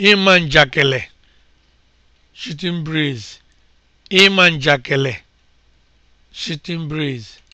ịma man shooting breeze shooting breeze